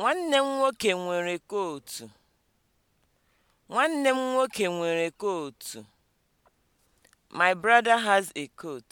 Nwanne m nwoke nwere kootu. My brother has a coat.